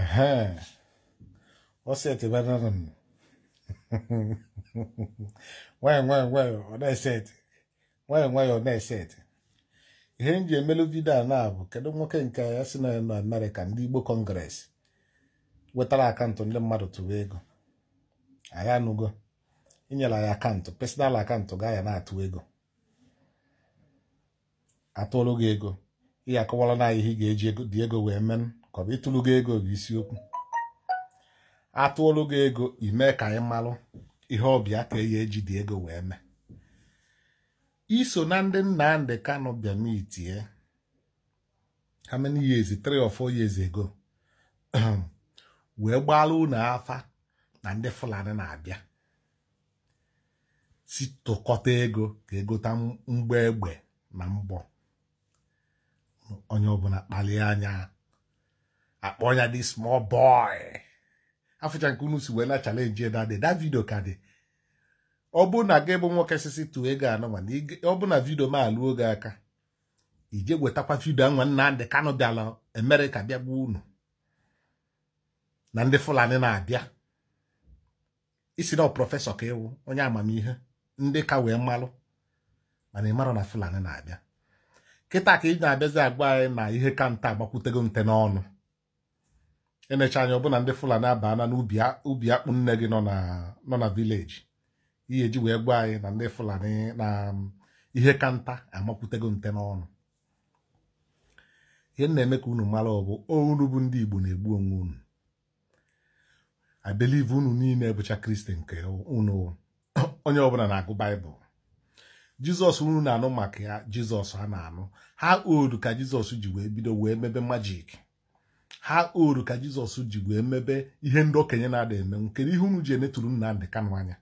Ehe, ọseti banana m nwayọ nwayọ ọ na-eseti ọ na ihe m ji emelu vidio a na kedu nwoke nke ya si na nọ Amerịka ndị Igbo kọngres wetara akaụntụ ndị mmadụ tụwa ego anyị anụgo inyere ya akaụntụ pesinal akaụntụ ga ya na-atụ ego atụrụ gị ego ị ga-akọwara na ihe ị ga-eji dị ego wee menụ ka ọ bụ ịtụlụ gị ego bụ isiokwu atụọlụ gị ego ime ka anyị malụ ihe ọbịa ka eyi eji dị ego wee mee iso na ndị Nnamdi Kano bịa mitie how many three or four years ago wee gbaala ụnọ afa na ndị Fulani na-abịa si tụkọta ego ka egota mgbọ egbe na mbọ onye ọbụla kpalie anya akpọ ya dị small boy afụcha nke unu si wee na chalenji dadị da vidio ka dị ọ bụ na gị bụ nwoke sisi tụọ ego anọ ma ọ bụ na vidio ma alụ oge aka ije wetakwa vidio nwa Nnamdi Kanu bịala Amerịka bịa gbuo unu na ndị Fulani na-abịa isi na prọfesọ ka ịwụ onye amamihe ndị ka wee mmalụ mana ị mara na Fulani na-abịa kịta ka ị na-abịazi agwa anyị na ihe ka nta agbakwutego nte n'ọnụ enecha anya ọbụna ndị fulani abana n'ubi akpụ nne gị nọ na vileji ihe eji wee gwa anyị na ndị fulani na um, ihe ka nta amakwutego nte n'ọnụ ihe na-eme ka unu mara ọbụ ounu bụ ndị igbo na-egbu onwe unu i unu niile bụcha kristi nke unu onye ọbụla na-agụ baịbụl jizọs unu na-anụ maka ya jizọs ha na-anụ ha odu ka jizọs ji wee bido wee mebe majik ha oru ka jizọs ji wee mebe ihe ndị okenye na-ada emenwu kedu ihe unu ji enetụrụ Nnamdi Kanu anya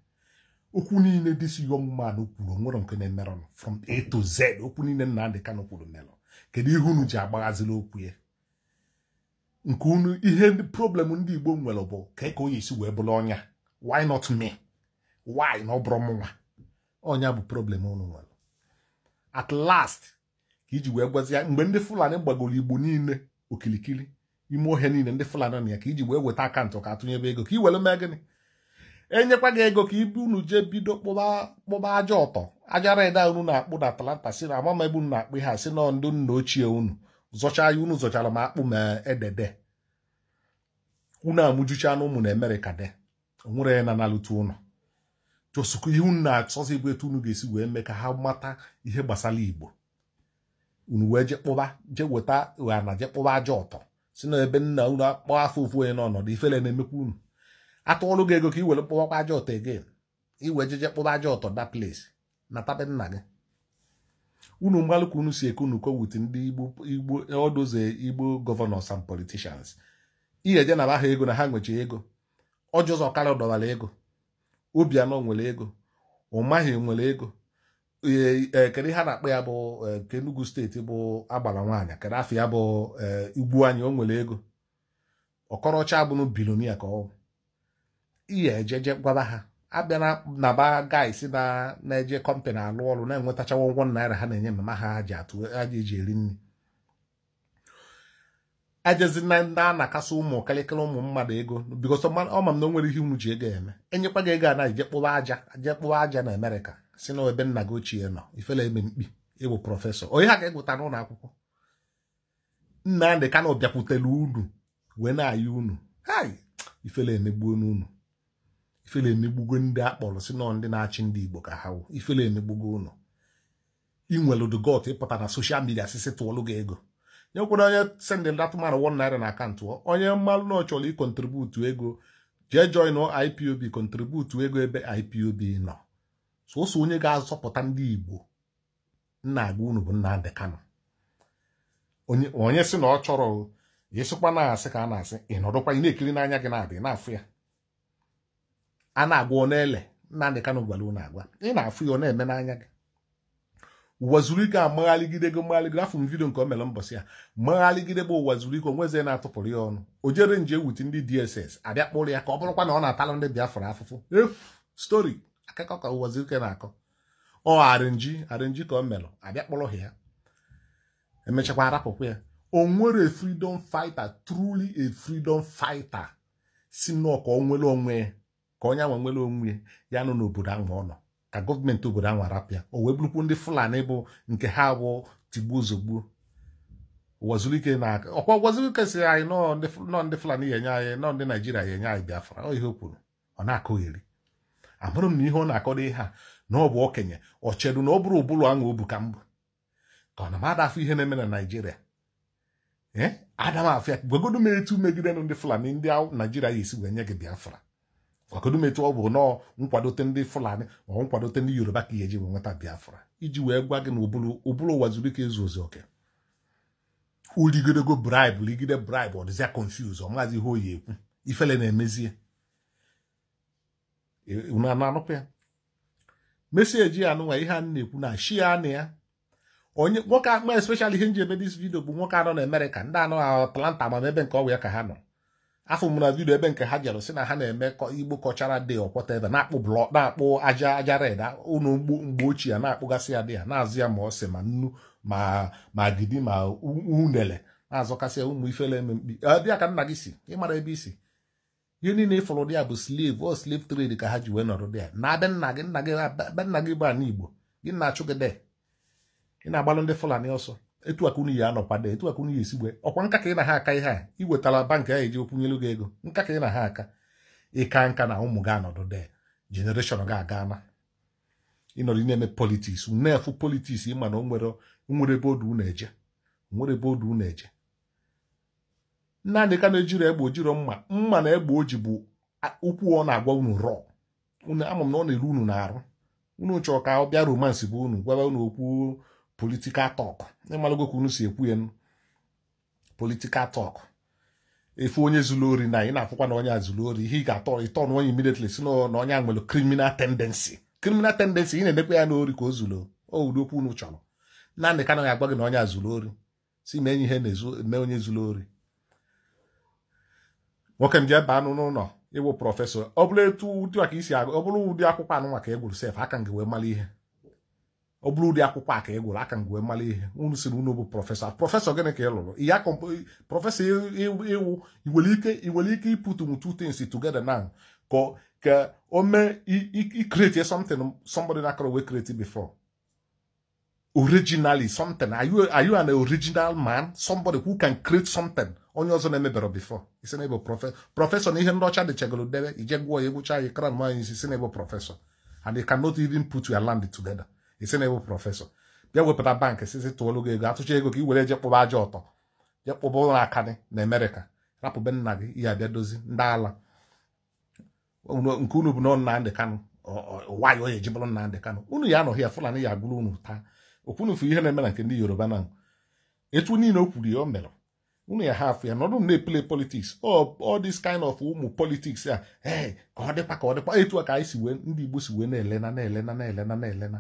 okwu niile si young ọmụmanụ kwuru nwere nke na-emerọnụ from A to Z okwu niile Nnamdi Kanu kwuru merọ kedu ihe unu ji agbaghaziri okwu ya nke unu ihe problem ndị Igbo nwere bụ ka ka onye isi wee bụrụ ọnya why not me why na ọ bụrụ ọnya bụ problem unu nwere at last ka iji wee gwazi mgbe ndị Fulani gbagoro Igbo niile okirikiri ime ohe niile ndị fulani na ya ka iji wee weta akaụntụ ka atụnyebe ego ka i were mee gịnị enyekwa gị ego ka ibu unu jee bido kpụba aja ọtọ aja reda unu na-akpụ na atalanta si na amama ebe unu na-akpụ ihe si na ndị nna ochie unu zọcha ya unu zọchara m akpụ ma edede unu amụjucha na ụmụ na emerịka de onwere na analụta ụnụ chọsụkwa ihe unu na-achọzi bụ etu unu ga-esi wee mee ka ha mata ihe gbasara igbo unu wee jee kpụba jee weta ụha jee kpụba aja ọtọ si na ebe nna unu akpọ afọ ụfụ onye n'ọnọdụ ifele na-emekwa unu atụọlụ gị ego ka i were kpọwakwa aja ọtọ again iwe jeje kpụba aja ọtọ that place na tabe nna gị unu mgbalụka unu si eke unu ko ndị igbo ọdụ odoze igbo eh, gọvanọs and politishans iyeje na aha ego na ha nwechi ego ọjọzọ karịa ọdọwara ego obianọ nwere ego ụmaghị nwere ego kedu ihe ha na-akpọ ya bụ nke Enugu steeti bụ agbara nwaanyị kedu afọ ya bụ igbu anyị o nwere ego ọkọrọcha abụrụ bilonia ka ọ ihe ejeje gwaba ha abịa na ba gaisi na eje kọmpanị alụ ọrụ na-enwetachawa ụgwọ naira ha na-enye mma ha ji atụ aja eji eri nri ajezi na ndị a na-akasị ụmụ kalịkịrị ụmụ mmadụ ego ọ ma m na o nwere ihe unu ji ego eme enyekwa gị ego a na-ejekpụwa aja kpụwa aja na Amerịka si na ebe nna gị ochie nọ ifele eme mkpi ịwụ prọfesọ onye ha ga-egwụta n'ụlọ akwụkwọ nna ka na ọ bịakwutela unu wee na-ayị unu hai ifele emegbuo n'unu ifele emegbugo ndị akpọrọ si nọ ndị na-achị ndị igbo ka ha wụ ifele emegbugo unu ị nwere dugot ịpụta na soshal midia sisi tụọlụ gị ego nyekwere onye sendị datụmanụ won naira na akantụ onye mmalụ na ọ chọrọ ego jee join IPOB kontributu ego ebe IPOB nọ sọsọ onye ga-azọpụta ndị Igbo nna agwa unu bụ Nnamdi Kanu onye sị na ọ chọrọ ịsịkwa na-asị ka a na-asị ị nọdụkwa ị na-ekiri n'anya gị na-adị na-afụ ya a na-agwa ọ na-ele Nnamdi Kanu gwara na agwa ị na-afụ ya ọ na-eme n'anya gị ụwa zuru ike amaghaligide gị mmaghaligide afọ m vidio nke o mere mbọsị ya mmaghaligide bụ ụwa zuru ike onweze na-atụpụrụ ya ọnụ o jere nje ewute ndị DSS abịa kpụrụ ya ka ọ bụrụkwa na ọ na-atalụ ndị Biafra afụfụ efu stori akụkọ ka ụwọzi ike na-akọ ọ arịnji arịnji ka ọ melụ abịa kpọrọ ha ya emechakwa arapụkwa ya o nwere faịta fighter truly a freedom fighter si nnọọ ka ọ onwe ka onye nwe nwere onwe ya nọ n'obodo ahụ ọ nọ ka gọọmenti obodo ahụ arapụ ya o wee bụrụkwu ndị fulani bụ nke ha bụ tigbuo zogbuo wazulike na ọkwa wazulike si anyị nọ ndị fulani ya enye anyị nọ ndị naijiria ya enye anyị biafra ọ ihe o kwuru ọ na-akụgheri amụrụ m na ihe ọ na-akọdo ihe a na ọ bụ okenye ọ chedu na ọ bụrụ ụbụrụ aṅụ obu ka mbụ ka ọ na m adafụ ihe na-eme na naijiria ee eh? adamafịa gwagodu m etu megide ndị fulani ndị naijiria ya esi wee nye gị biafra gwagodu m etu ọ bụ nọọ nkwadote ndị fulani ma ọ nkwadote ndị yoruba ka ihe eji wee nweta biafra iji wee gwa gị na ụbụrụ ụwa zuru ike ezu ozu oke uligidego braibụ ligide braibụ ọ dịzia ọ maazị ihe oyi ekwu ifele na-emezie unu anụpụ ya mesie ji ya nụnwa ihe a na-ekwu na shi ya na ya onye nwoke akpa especially ihe nji eme dis vidio bụ nwoke anọ na Amerịka ndị anọ na Atlanta ma ebe nke ọgwụ ya ka ha nọ afọ m na vidio ebe nke ha jere si na ha na-eme igbo kọchara dị ọkwọta ebe na-akpụ blọ na-akpụ aja aja red ụlọ mgbe ochie ya na-akpụgasị ya dị ya na-azụ ya ma ọsị ma nnu ma ma gidi ma unele na-azọkasị ya ụmụ ifele eme mkpi dị ya ka nna gị si ịmara ebe isi ihe niile ịfụrụ dị ya bụ slev ọ slave trade ka ha ji wee nọrọ dị ya na be nna gị nna gị be nna gị bụ ana igbo gị na-achụ gị de ị na-agbalụ ndị fulani ọsọ etu aka unu ya anọkwado etu aka unu ya esigbe ọkwa nka ka ị na ha aka ihe a iwetara bankị a eji okwunyelu gị ego nka ka ị na ha aka ịka nka na ụmụ gị anọdụ de jenereshọn gị aga na ịnọrọ na-eme politiks na politiks ịma na o nwere ebe odu eje nwere ebe odu eje Nnamdị na ejiro egbe ojiro mma mma na egbe oji bụ ukwu ọ na-agwa unu rọ unu ama m na ọ na-eru unu na-arụ unu chọrọ ka ọ bịa romansi bụ unu gwaba unu okwu politikal tọk ịmalụgo ka unu si ekwu ya politikal tọk efu onye zuru ori na ị na-afụkwa na onye a zuru ori ihe ị ga-atọ ịtọ na onye immediately si na onye a nwere kriminal tendensi kriminal tendensi ị na-edekwa ya n'ori ka o zuru owudo okwu unu chọrọ Nnamdị Kanụ ya agwa gị na onye a zuru ori si mee ihe na-eme onye zuru ori nwoke m jee baa anụ n'ụlọ ịwụ prọfesọ ọ bụrụ etu ụdị ka isi agụ ọ bụrụ ụdị akwụkwọ anụ maka egwuru sef aka m wee mara ihe ọ bụrụ ụdị akwụkwọ aka egwuru aka m wee mara ihe unu siri unu bụ prọfesọ prọfesọ gịnị ka ị lụrụ ya prọfesọ ịwụ iwere ike ike ịpụtụnwu two tins together now ka o mee ikreti something somebody na akọrọ wee kreti before originally something are you are you an original man somebody who can create something onye ọzọ na-emebere before isi na ebo prọfesọ na ihe ndọcha ọcha dị chegoro debe ije gwụọ ya egwucha ya kran nwaanyị isi si na ebo prọfesọ and you cannot even put your land together isi na ebo prọfesọ bịa wepụta bankị sisi tụọlụ gị ego atụcha ego ka ị were je kpụba aja ọtọ je kpụba ụlọ aka gị na amerịka rapụbe nna gị ihe abịa dozi ndị ala nke unu bụ na Nnamdị Kanụ wayo ya ejibụrụ Nnamdị Kanụ unu ya anọghị ya Fulani ya agụrụ unu taa okwunufu ihe na-eme na nke ndị yoruba na etu niile o kwuru ya o mere unu ya ha afụ ya nọdụ na-epele politiks all this kind of ụmụ politiks a ee ka ọ dịkwa ka ọ dịkwa etu ka anyị si wee ndị igbo si wee na-elena na-elena na-elena na-elena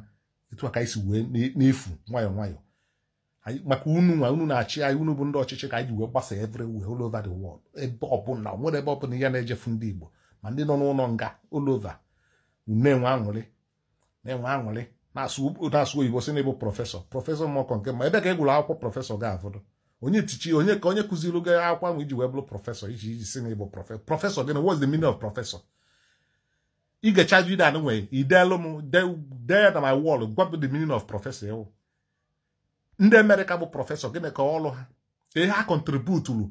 etu a ka anyị si wee na-efu nwayọọ nwayọọ maka unu nwa unu na-achị anyị unu bụ ndị ọchịchị ka anyị ji wee gbasa everywhere all over the world ebe ọbụla nwere ebe ọbụla ihe na-ejefu ndị igbo ma ndị nọ n'ụlọ nga olova over aṅụrị na-enwe aṅụrị na-asụ oyibo si na ịbụ prọfesọ prọfesọ mmọkọ nke ma ebe ka ị e akwụkwọ prọfesọ ga-afọdụ onye tichi onye ka onye kụziri gị akwụkwọ ahụ iji wee bụrụ prọfesọ iji iji si na ịbụ prọfesọ prọfesọ gị na what's the meaning of prọfesọ ị ga-echaju ide anụ nwere ideelu m dee na my wall gwapụ the meaning of prọfesọ ewu ndị amerịka bụ prọfesọ gịnị ka ọlụ ha ihe ha kọntributuru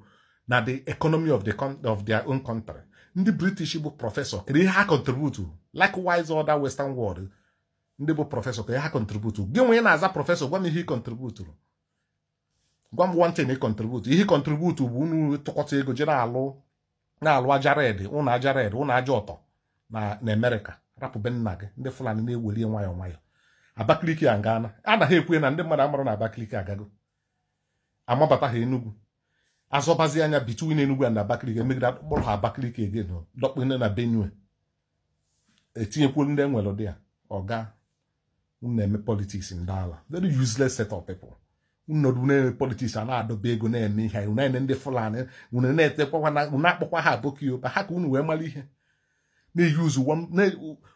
na the economy of, the of their own country ndị british bụ prọfesọ kedu ihe ha kọntributuru likewise other western world ndị bụ prọfesọ ka ya ha kọntributu gị nwe na-aza prọfesọ gwa m ihe ị kọntributuru gwa m wantin ị kọntributu ihe kọntributu bụ unu tụkọta ego je na-alụ na-alụ aja red ụnụ aja red ụnụ aja ọtọ na Amerịka rapụbe nna gị ndị Fulani na-eweli nwayọ nwayọọ Abakaliki a ngaana anaghị ekwe na ndị mmadụ amara na Abakaliki agago amabata ha Enugu azọbazi anya between Enugu na abakiliki emegide akpọrọ ha Abakaliki egen dọkpene na Benue etinyekwuru ndị enwere ụdị ya ọga unu na-eme politiks ndị ala very useless set of people unu na-eme politiks a na-adọba ego na-eme ihe unu na ndị fulani unu na-akpọkwa ha aboki yoba ha ka unu wee mara ihe na-eyuz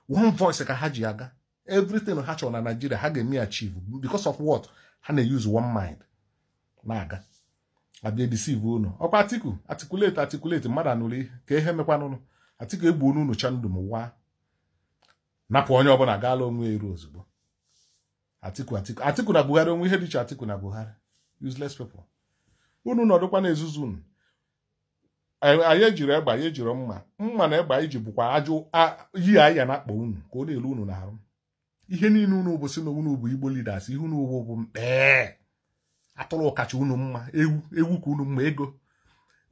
one voice ka ha ji aga everything ha chọrọ na naijiria ha ga-eme achieve because of what ha na-eyuz one mind na-aga abịa deceive unu ọkwa atiku atikuleti atikuleti mmadụ anụrụ ihe ka ihe mekwanụnụ atiku egbuo n'unu chandum waa napụ onye ọbụla gaala onwe eru ozugbo atiku atiku atiku na buhari onwe ihe dịcha atiku na buhari useless Unu unu nọdụkwa na ezuzu unu anyị ejiri egba anyị ejiri mma mma na egbe anyị bụkwa ajụ yi aya na akpa unu ka ọ na-elu unu na-arụ ihe niile unu bụ na unu bụ igbo leaders ihe unu bụ mkpee atụrụ kacha unu mma ewu ewu ka unu mma ego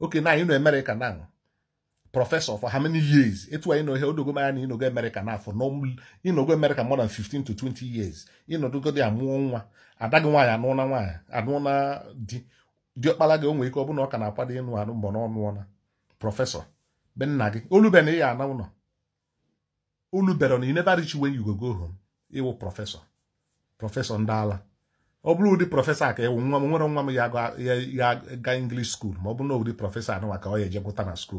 oke na anyị nọ Amerịka na professor for how many years etu anyị nọ ihe odogo mara na ịnogo America n'afọ ịnogo America more than 15 to 20 years ịnọdogo dị amụọ nwa ada gị nwaanyị anụọ nwaanyị anụọ na di gị onwe ike ọ bụ na ọ ka na-akwado ịnụ anụ mbọ n'ọnụ prọfesọ olubere na ị ya ana ụlọ olubere na you wen ịwụ prọfesọ prọfesọ ndị ala ọ bụrụ ụdị prọfesọ a ka ịwụ nwa m nwere nwa m ya ga English school ma ọ bụrụ na ụdị prọfesọ anụ ọ ya eje na school